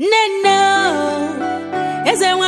nne nne eze nwe